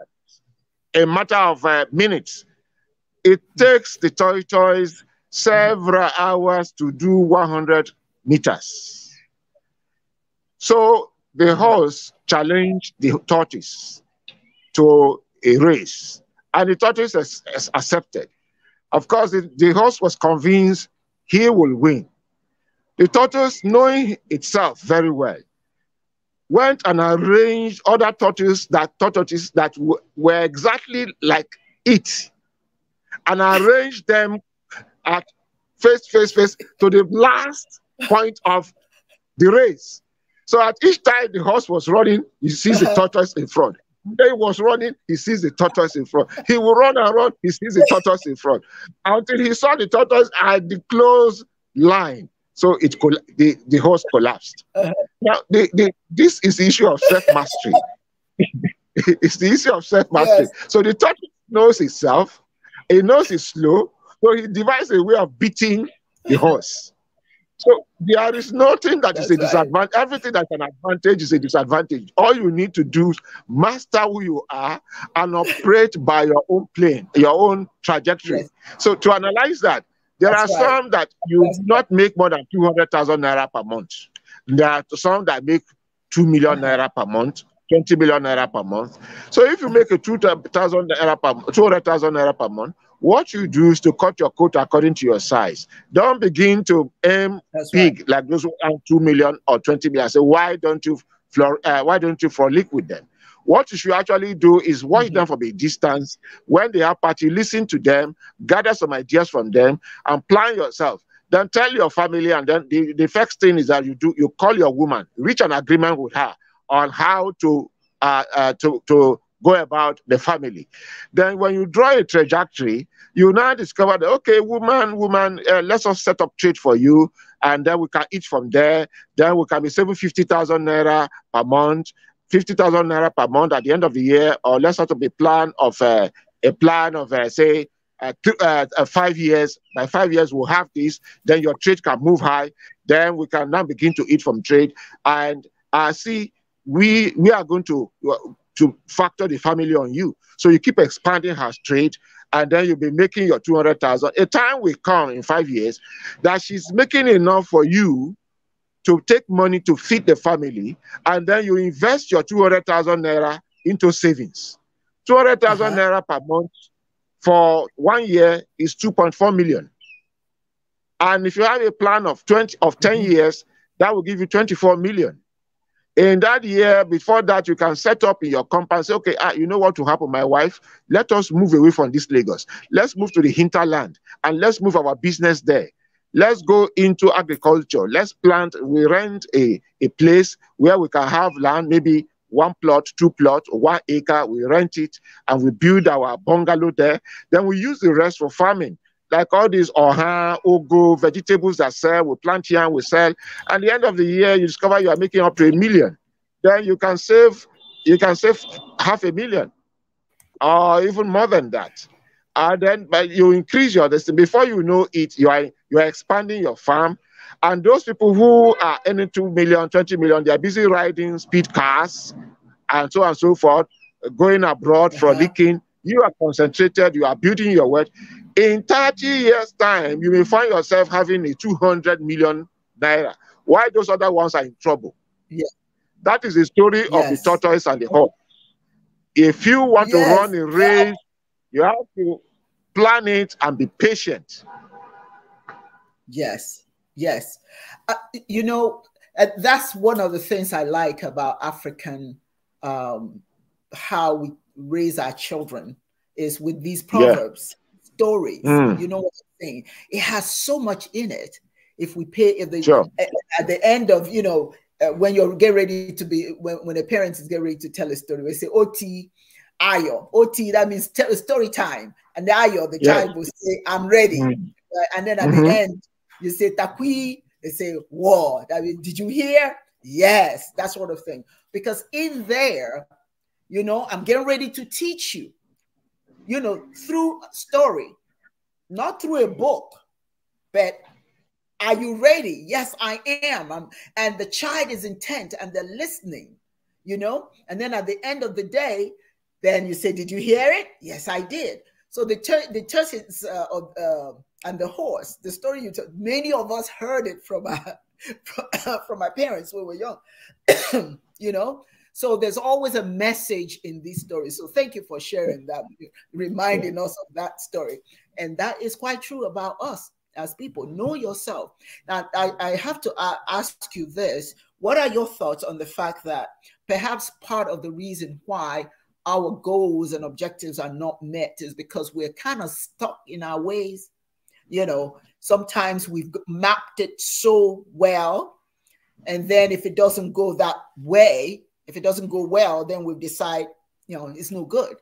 a matter of uh, minutes. It mm-hmm. takes the tortoise several hours to do 100 meters. So the mm-hmm. horse challenged the tortoise to a race, and the tortoise has, has accepted. Of course, the, the was convinced he will win. The tortoise, knowing itself very well, went and arranged other tortoises that tortoises that were exactly like it, and arranged them at face, face, face to the last point of the race. So at each time the horse was running, he sees the uh-huh. tortoise in front. He was running, he sees the tortoise in front. He will run and run, he sees the tortoise in front. Until he saw the tortoise at the close line. So it coll- the, the horse collapsed. Uh-huh. Now, the, the, this is the issue of self mastery. *laughs* it's the issue of self mastery. Yes. So the tortoise knows itself, it knows it's slow, so he devised a way of beating the horse. So there is nothing that That's is a disadvantage. Right. Everything that's an advantage is a disadvantage. All you need to do is master who you are and operate by your own plane, your own trajectory. Yes. So to analyze that, there that's are right. some that you that's not make more than 200,000 naira per month. There are some that make 2 million naira per month. 20 million naira per month. So if you make a 200,000 naira per 200,000 naira per month, what you do is to cut your coat according to your size. Don't begin to aim That's big right. like those who earn two million or twenty million. Say, why don't you floor? Uh, why don't you for liquid them? What you should actually do is watch mm-hmm. them from a distance. When they are party, listen to them, gather some ideas from them, and plan yourself. Then tell your family, and then the, the first thing is that you do you call your woman, reach an agreement with her on how to uh, uh, to to go about the family. Then when you draw a trajectory, you now discover that, okay, woman, woman, uh, let's all set up trade for you. And then we can eat from there. Then we can be saving 50,000 naira per month, 50,000 naira per month at the end of the year, or let's set up a plan of uh, a plan of, uh, say, uh, uh, uh, five years. By five years, we'll have this. Then your trade can move high. Then we can now begin to eat from trade. And I uh, see we we are going to to factor the family on you. So you keep expanding her trade, and then you'll be making your 200,000. A time will come in five years that she's making enough for you to take money to feed the family, and then you invest your 200,000 naira into savings. 200,000 uh-huh. naira per month for one year is 2.4 million. And if you have a plan of 20 of 10 mm-hmm. years, that will give you 24 million in that year before that you can set up in your compound say okay ah, you know what will happen my wife let us move away from this lagos let's move to the hinterland and let's move our business there let's go into agriculture let's plant we rent a, a place where we can have land maybe one plot two plot one acre we rent it and we build our bungalow there then we use the rest for farming like all these oha, ogo, vegetables that sell, we plant here and we sell. And the end of the year, you discover you are making up to a million. Then you can save, you can save half a million, or even more than that. And then but you increase your destiny. Before you know it, you are you are expanding your farm. And those people who are earning 2 million, 20 million, they are busy riding speed cars and so on and so forth, going abroad, uh -huh. frolicking. You are concentrated, you are building your wealth in 30 years' time, you may find yourself having a 200 million naira. Why those other ones are in trouble? Yeah. That is the story yes. of the tortoise and the hawk. If you want yes. to run a race, you have to plan it and be patient. Yes, yes. Uh, you know, uh, that's one of the things I like about African, um, how we raise our children is with these proverbs. Yeah stories. Mm. You know what I'm saying? It has so much in it. If we pay, if they sure. at, at the end of you know uh, when you're get ready to be when, when a parent is get ready to tell a story, we say OT ayo. OT that means tell story time. And the ayo, the yeah. child will say, I'm ready. Mm uh, and then at mm -hmm. the mm-hmm. end, you say takui, they say, Whoa, that means, did you hear? Yes, that sort of thing. Because in there, you know, I'm getting ready to teach you you know, through story, not through a book, but are you ready? Yes, I am. I'm, and the child is intent and they're listening, you know? And then at the end of the day, then you say, Did you hear it? Yes, I did. So the, tur- the turkeys uh, uh, and the horse, the story you told, many of us heard it from our, *laughs* from uh, our parents when we were young, *coughs* you know? So there's always a message in these stories. So thank you for sharing that, reminding us of that story. And that is quite true about us as people. Know yourself. Now, I, I have to uh, ask you this What are your thoughts on the fact that perhaps part of the reason why our goals and objectives are not met is because we're kind of stuck in our ways? You know, sometimes we've mapped it so well. And then if it doesn't go that way, if it doesn't go well, then we decide, you know, it's no good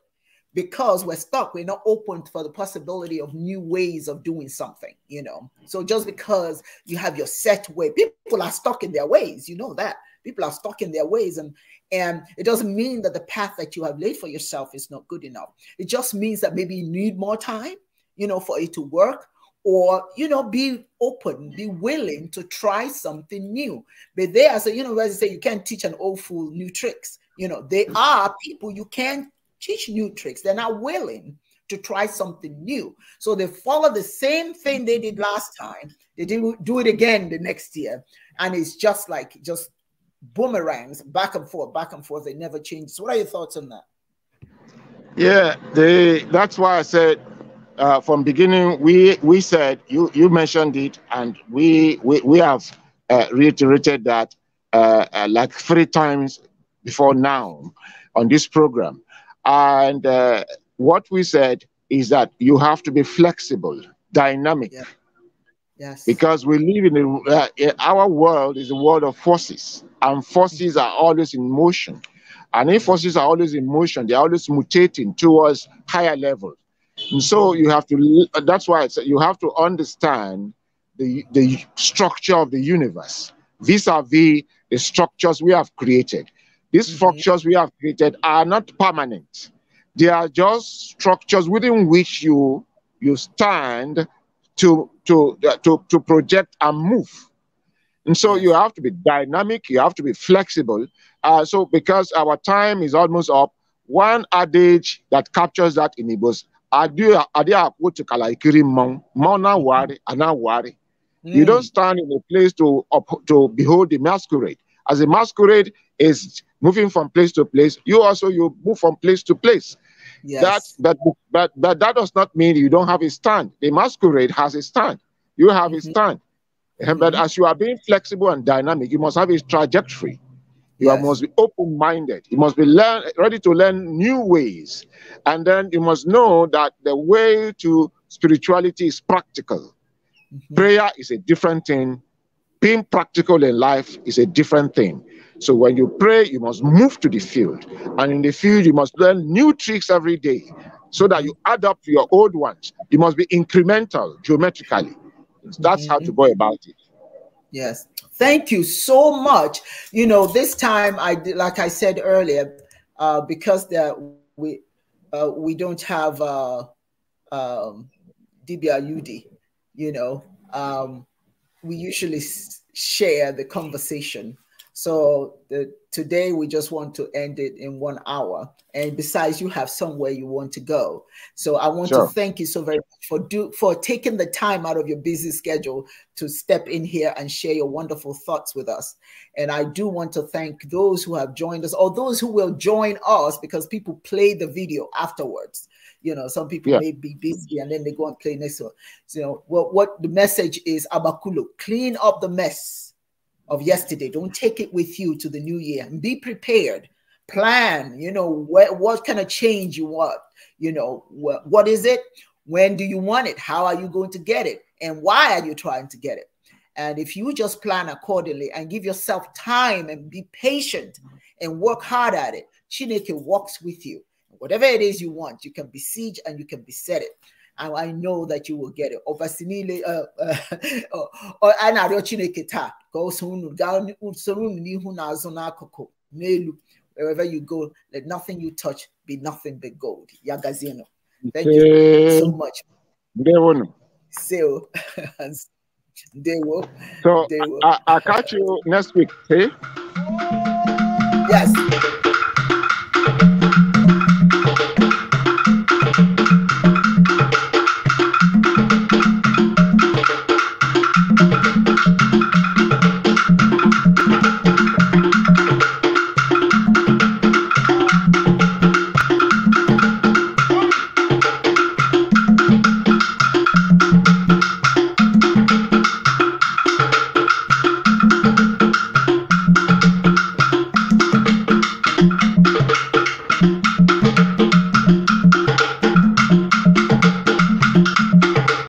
because we're stuck. We're not open for the possibility of new ways of doing something, you know. So just because you have your set way, people are stuck in their ways. You know that people are stuck in their ways and and it doesn't mean that the path that you have laid for yourself is not good enough it just means that maybe you need more time you know for it to work or you know be open be willing to try something new but they as a university say you can't teach an old fool new tricks you know they are people you can't teach new tricks they're not willing to try something new so they follow the same thing they did last time they do, do it again the next year and it's just like just boomerangs back and forth back and forth they never change so what are your thoughts on that yeah they that's why i said uh, from beginning, we we said you you mentioned it, and we we we have uh, reiterated that uh, uh like three times before now on this program, and uh, what we said is that you have to be flexible, dynamic. Yeah. Yes. Because we live in a, uh, our world is a world of forces, and forces are always in motion. And if forces are always in motion, they're always mutating towards higher levels and so you have to, uh, that's why it's, you have to understand the, the structure of the universe vis a vis the structures we have created. These mm-hmm. structures we have created are not permanent, they are just structures within which you, you stand to, to, uh, to, to project and move. And so you have to be dynamic, you have to be flexible. Uh, so, because our time is almost up, one adage that captures that in Igbos ade akwo chikala ikiri mmanwụ mmanwụ worry a na-awụgharị you hmm. don't stand in a place to to behold the masquerade as a masquerade is moving from place to place you also you move from place to place yes. that but but but that does not mean you don't have a stand the masquerade has a stand you have mm -hmm. a mm-hmm. stand mm -hmm. but mm-hmm. as you are being flexible and dynamic you must have a trajectory you yes. must be open minded. You must be learn, ready to learn new ways. And then you must know that the way to spirituality is practical. Mm-hmm. Prayer is a different thing, being practical in life is a different thing. So when you pray, you must move to the field. And in the field, you must learn new tricks every day so that you add up to your old ones. You must be incremental geometrically. That's mm-hmm. how to mm-hmm. go about it. Yes. Thank you so much. You know, this time I did, like I said earlier, uh, because we uh, we don't have uh, um, DBRUD, you know, um, we usually share the conversation so the, today we just want to end it in one hour. And besides, you have somewhere you want to go. So I want sure. to thank you so very much for do for taking the time out of your busy schedule to step in here and share your wonderful thoughts with us. And I do want to thank those who have joined us or those who will join us because people play the video afterwards. You know, some people yeah. may be busy and then they go and play next one. So, you know, what, what the message is Abakulu, clean up the mess of yesterday. Don't take it with you to the new year and be prepared. Plan, you know, what, what kind of change you want, you know, what, what is it? When do you want it? How are you going to get it? And why are you trying to get it? And if you just plan accordingly and give yourself time and be patient and work hard at it, Chineke walks with you. Whatever it is you want, you can besiege and you can beset it and I know that you will get it. Ọbasi niile Or na kita. Chineke taa ka o soro Ni n'ihu na azụ n'akụkụ wherever you go let nothing you touch be nothing but gold. Yagazino. Thank you so much. Ndewonu. *laughs* So, Ndewo. So, I'll catch you next week. Hey? Yes.